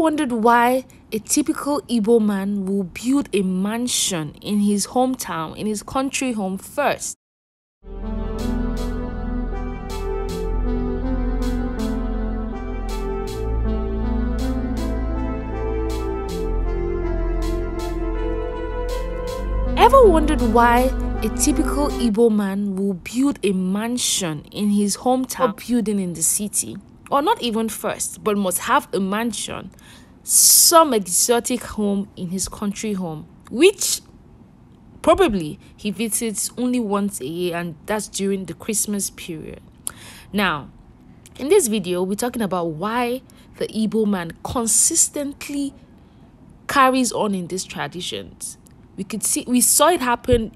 wondered why a typical Igbo man will build a mansion in his hometown, in his country home first? Ever wondered why a typical Igbo man will build a mansion in his hometown building in the city? or not even first, but must have a mansion, some exotic home in his country home, which probably he visits only once a year, and that's during the Christmas period. Now, in this video, we're talking about why the Igbo man consistently carries on in these traditions. We could see we saw it happen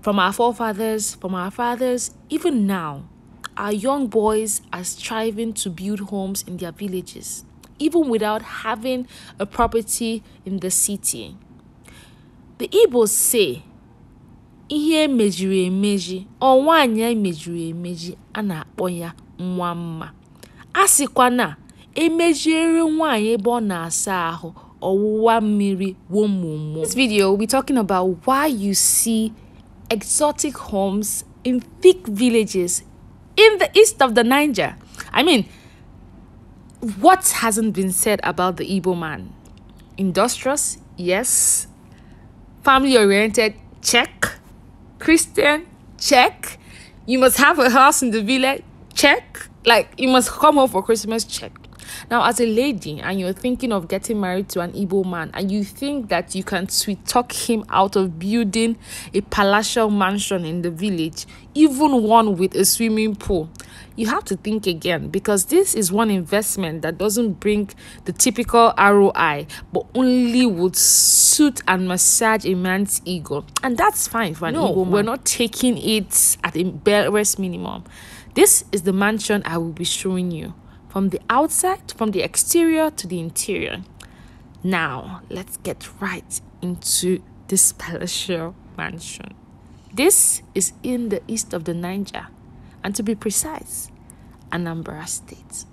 from our forefathers, from our fathers, even now our young boys are striving to build homes in their villages, even without having a property in the city. The Igbos say, ihe mejiri emeji, ọ nwaanyị meji, mejiri emeji a na-akpọ ya nwa mma. A sịkwa na emejiere nwaanyị ebe ọ na-asa ahụ ọwụwa mmiri This video we'll be talking about why you see exotic homes in thick villages in the east of the Niger. I mean, what hasn't been said about the Igbo man? Industrious, yes. Family oriented, check. Christian, check. You must have a house in the village, check. Like, you must come home for Christmas, check. Now, as a lady and you're thinking of getting married to an Igbo man and you think that you can sweet talk him out of building a palatial mansion in the village, even one with a swimming pool, you have to think again because this is one investment that doesn't bring the typical ROI but only would suit and massage a man's ego. And that's fine for an no, Igbo man. We're not taking it at the barest minimum. This is the mansion I will be showing you from the outside, from the exterior to the interior. Now, let's get right into this palatial mansion. This is in the east of the Niger, and to be precise, Anambra State.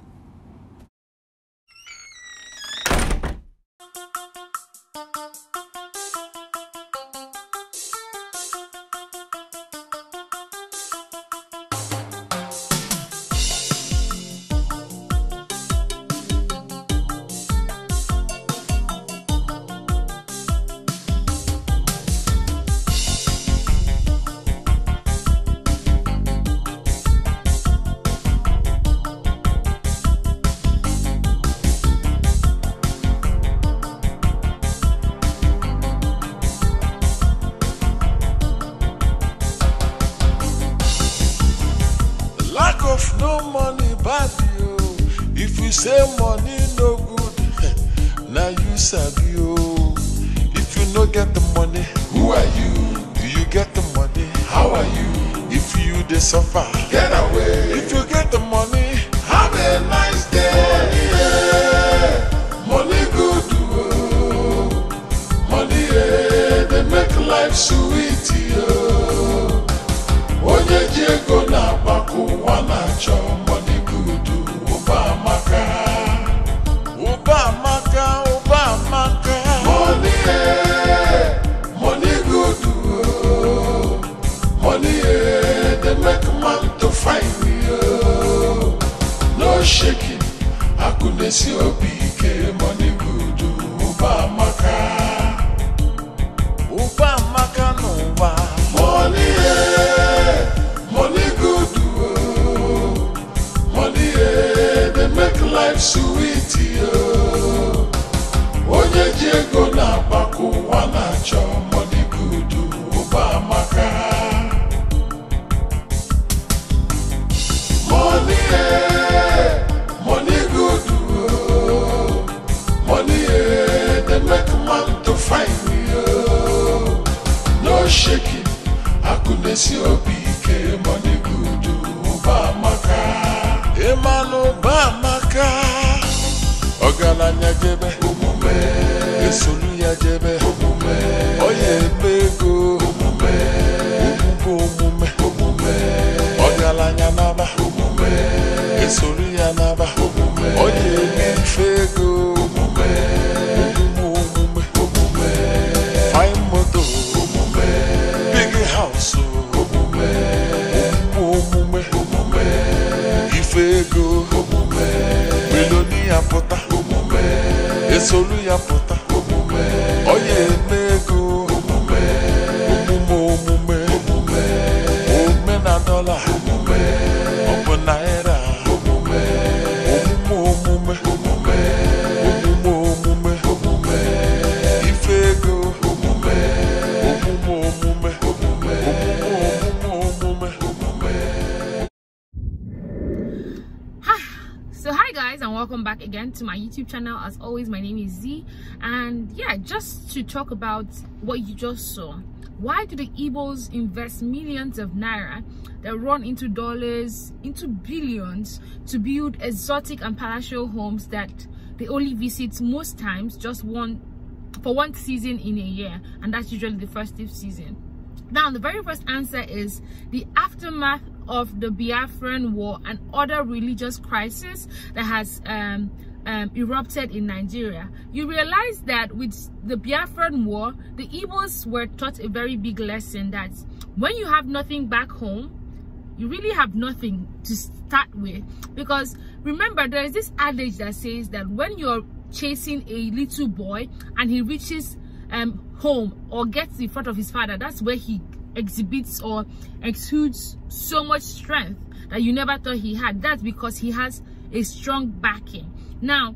if you say money no good now you sabi you. Oh. if you no get the money who are you do you get the money how are you if you dey suffer get away if you get the money have a nice day. Oh. Eh, life sweet yo oh. onye ji ego na-agbakọ ụwa na-achọ Udesi obi ike money good ụba amaka ụba amaka n'ụwa money e, money good oh money e dey make life sweet oh onye ji ego na-agbakọ ụwa na-achọ money good ụba maka. money e. akụnesi obi ike monigudu ụba amaka ịmanụ ụba amaka ọgaranya jebe omume esolu ya jebe esolu a pụta guys and welcome back again to my youtube channel as always my name is z and yeah just to talk about what you just saw why do the Igbos invest millions of naira that run into dollars into billions to build exotic and palatial homes that they only visit most times just one for one season in a year and that's usually the festive season now the very first answer is the aftermath of the Biafran War and other religious crisis that has um, um, erupted in Nigeria. You realize that with the Biafran War, the Igbos were taught a very big lesson that when you have nothing back home, you really have nothing to start with because remember there is this adage that says that when you're chasing a little boy and he reaches um, home or gets in front of his father that's where he exhibits or exudes so much strength that you never thought he had. That's because he has a strong backing. Now,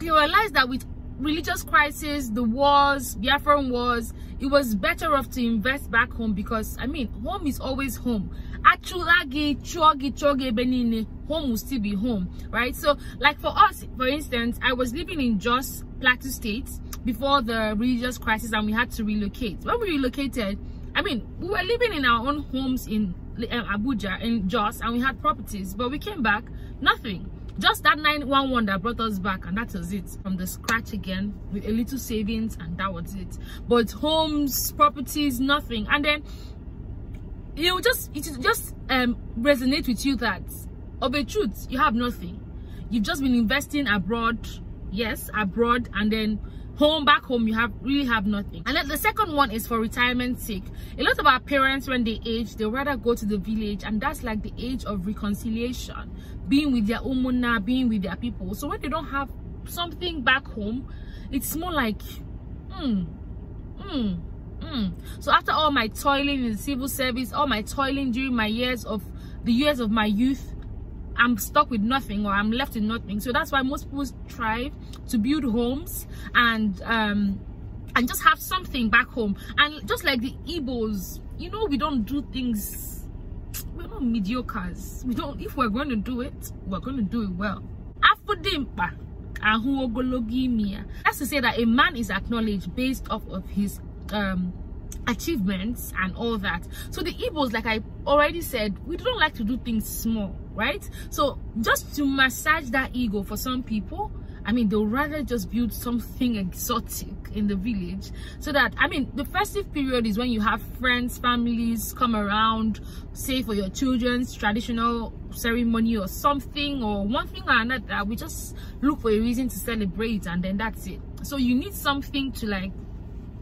you realize that with religious crisis, the wars, Biafran wars, it was better off to invest back home because, I mean, home is always home. Achulagi, chogi, chogi, benine, home will still be home, right? So, like for us, for instance, I was living in Jos, Plateau State before the religious crisis and we had to relocate. When we relocated, I mean, we were living in our own homes in um, Abuja, in Jos, and we had properties, but we came back, nothing. Just that 911 that brought us back, and that was it. From the scratch again, with a little savings, and that was it. But homes, properties, nothing. And then, you know, just, it just um, resonate with you that, of a truth, you have nothing. You've just been investing abroad, yes, abroad, and then home back home you have really have nothing and then the second one is for retirement sake a lot of our parents when they age they rather go to the village and that's like the age of reconciliation being with their umuna being with their people so when they don't have something back home it's more like hmm, hmm, mm. so after all my toiling in the civil service all my toiling during my years of the years of my youth i'm stuck with nothing or i'm left with nothing so that's why most people strive to build homes and um and just have something back home and just like the Igbos you know we don't do things we're not mediocres we don't if we're going to do it we're going to do it well afudimpa that's to say that a man is acknowledged based off of his um achievements and all that so the Igbos like I already said we don't like to do things small right so just to massage that ego for some people I mean, they'll rather just build something exotic in the village so that, I mean, the festive period is when you have friends, families come around, say for your children's traditional ceremony or something or one thing or another. We just look for a reason to celebrate and then that's it. So you need something to like,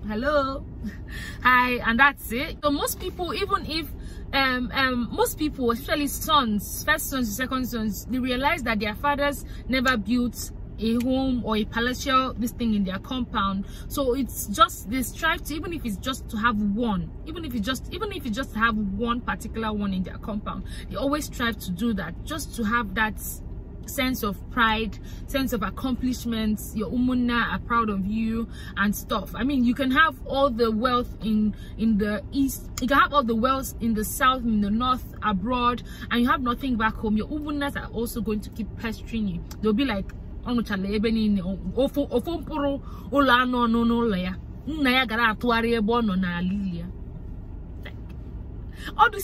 hello, hi, and that's it. So most people, even if um, um, most people, especially sons, first sons, second sons, they realize that their fathers never built a home or a palatial this thing in their compound so it's just they strive to even if it's just to have one even if it's just even if you just have one particular one in their compound they always strive to do that just to have that sense of pride sense of accomplishments your umunna are proud of you and stuff i mean you can have all the wealth in in the east you can have all the wealth in the south in the north abroad and you have nothing back home your umunas are also going to keep pestering you they'll be like all these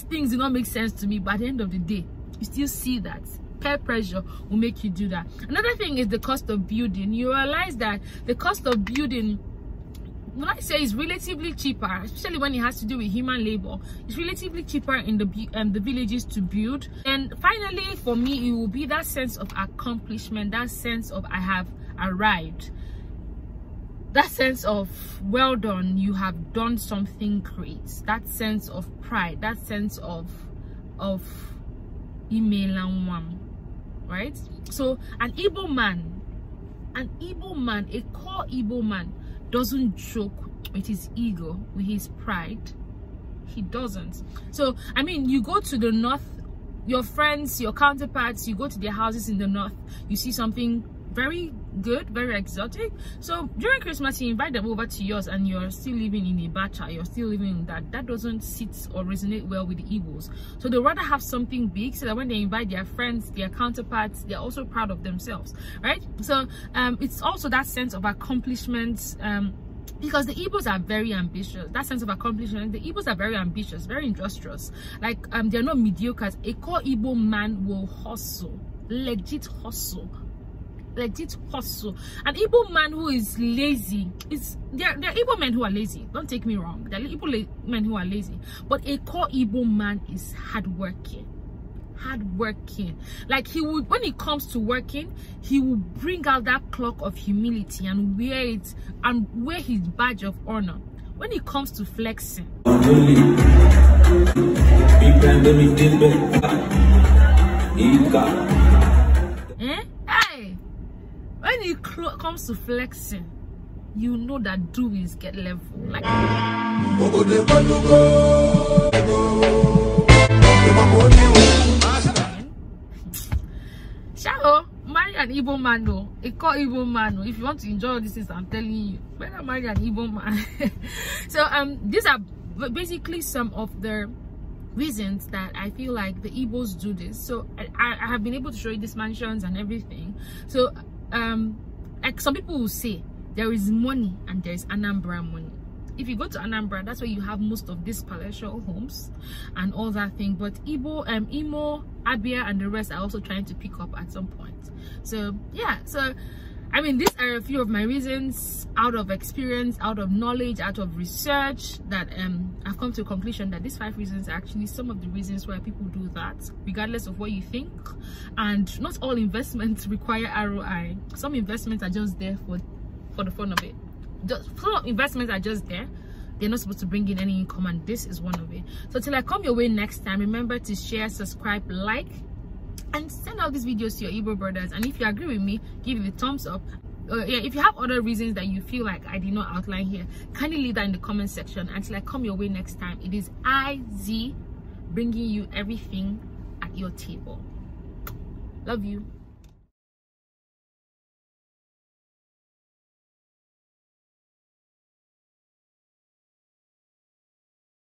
things do not make sense to me but at the end of the day you still see that peer pressure will make you do that another thing is the cost of building you realize that the cost of building when I say it's relatively cheaper, especially when it has to do with human labor, it's relatively cheaper in the um, the villages to build. And finally, for me, it will be that sense of accomplishment, that sense of I have arrived, that sense of well done, you have done something great, that sense of pride, that sense of of email and one right so an Ibo man an Ibo man a core Ibo man doesn't joke with his ego with his pride he doesn't so i mean you go to the north your friends your counterparts you go to their houses in the north you see something very good very exotic so during christmas you invite them over to yours and you're still living in a ibacha you're still living in that that doesn't sit or resonate well with the igbos so they rather have something big so that when they invite their friends their counterparts they're also proud of themselves right so um, it's also that sense of accomplishment um, because the Igbos are very ambitious. That sense of accomplishment, the Igbos are very ambitious, very industrious. Like um, they're not mediocre. A core Igbo man will hustle, legit hustle legit hustle an evil man who is lazy is there there are evil men who are lazy don't take me wrong there are Igbo men who are lazy but a core evil man is hardworking hard working like he would when it comes to working he will bring out that clock of humility and wear it and wear his badge of honor when it comes to flexing when it comes to flexing you know that doings is get level like Shaho, marry an evil man though. It called evil man though. If you want to enjoy all these things, I'm telling you. Better marry an evil man. so um these are basically some of the reasons that I feel like the evils do this. So I, I have been able to show you these mansions and everything. So um like some people will say there is money and there is anambra money if you go to anambra that's where you have most of these palatial homes and all that thing but Ibo, um imo abia and the rest are also trying to pick up at some point so yeah so i mean these are a few of my reasons out of experience out of knowledge out of research that um i've come to a conclusion that these five reasons are actually some of the reasons why people do that regardless of what you think and not all investments require roi some investments are just there for for the fun of it just some investments are just there they're not supposed to bring in any income and this is one of it so till i come your way next time remember to share subscribe like and send out these videos to your Igbo brothers. And if you agree with me, give it a thumbs up. Uh, yeah, if you have other reasons that you feel like I did not outline here, kindly leave that in the comment section until I come your way next time. It is IZ bringing you everything at your table. Love you.